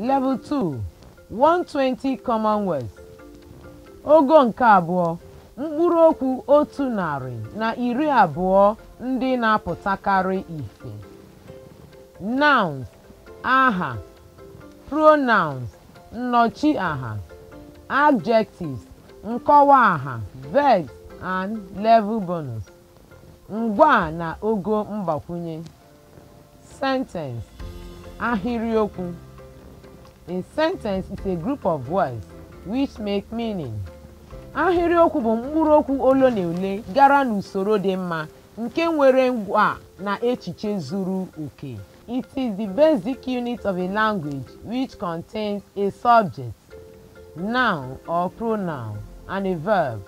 Level 2 120 Commonwealth ogo nke abụọ mkpụrụ okwu otu narị na iri abụọ ndị na-apụtakarị ife nouns aha pronouns Aha: adjectives nkọwa aha verbs and level bonus ngwa na ogo mgbakwunye sentence ahịrịokwu A sentence is a group of words which make meaning. Ahịrịokwu bụ mkpụrụokwu ole na ole gara n'usoro dị mma nke nwere ngwa na echiche zuru oke. It is the basic unit of a language which contains a subject, noun or pronoun, and a verb.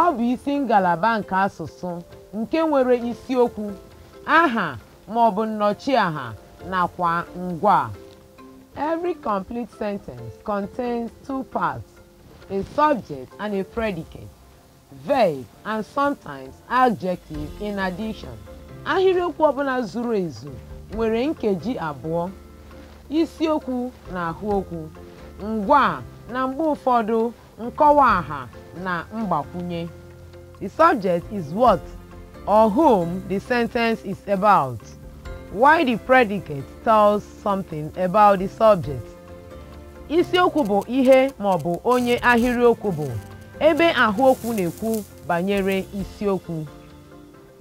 Ọ bụ isi ngalaba nke asụsụ nke nwere isiokwu, aha ma ọ bụ nnọchiaha nakwa ngwa. Every complete sentence contains two parts, a subject and a predicate, verb and sometimes adjective in addition. Ahịrịokwu ọbụla zuru ezu nwere nkeji abụọ, isiokwu na ahụokwu, ngwa na mgbe ụfọdụ nkọwa aha na mgbakwunye. The subject is what or whom the sentence is about. why the predicate tells something about the subject. Isiokwu bụ ihe ma ọ bụ onye ahịrịokwu bụ ebe ahụokwu na-ekwu banyere isiokwu.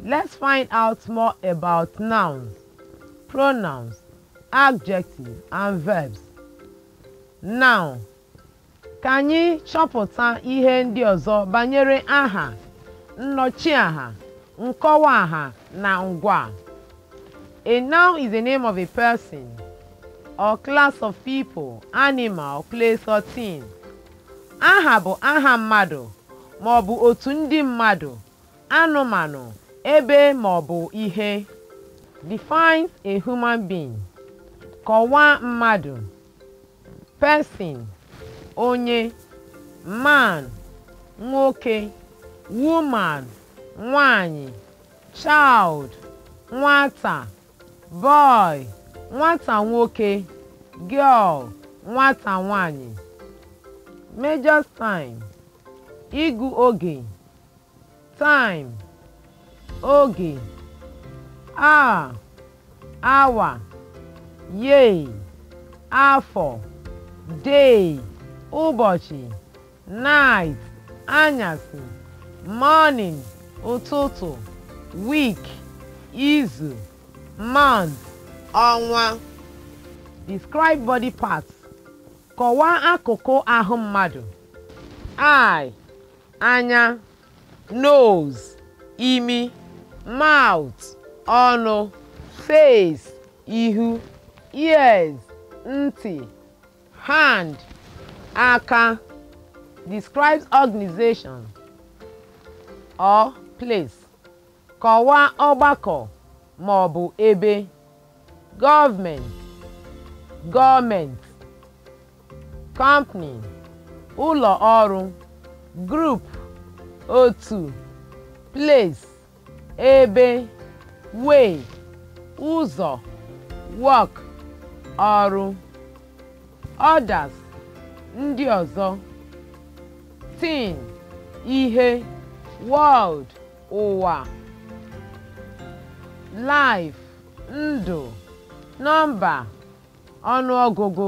Let's find out more about nouns, pronouns, adjectives, and verbs. Noun. Ka anyị chọpụta ihe ndị ọzọ banyere aha, nnọchi aha nkọwa aha na ngwa. A noun is the name of a person or class of people, animal, place or thing. Aha bụ aha mmadụ ma ọ bụ otu ndị mmadụ, anụmanụ, ebe ma ọ bụ ihe. Defines a human being. Kọwaa mmadụ. Person, onye, man, nwoke, woman, nwanyị, child, nwata. boy nwata nwoke girl nwata nwanyị major time igu oge time oge hour hour yay afọ day ụbọchị night anyasị morning ụtụtụ week izu man ọnwa describe body parts kọwaa akụkụ ahụ mmadụ eye anya nose imi mouth ọnụ face ihu ears ntị hand aka describes organization or place kọwaa ọgbakọ ma ọ bụ ebe gọọmenti gọọmenti kọmpani ụlọ ọrụ grup otu place ebe wei ụzọ wọk ọrụ ọdas ndị ọzọ tin ihe wọld ụwa life ndụ nọmba ọnụọgụgụ